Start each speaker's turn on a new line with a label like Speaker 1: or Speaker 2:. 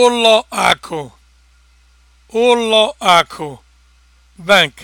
Speaker 1: ụlọ akụ ụlọ akụ bank